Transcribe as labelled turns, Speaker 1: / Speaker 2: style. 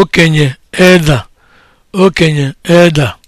Speaker 1: okenye eda okenye eda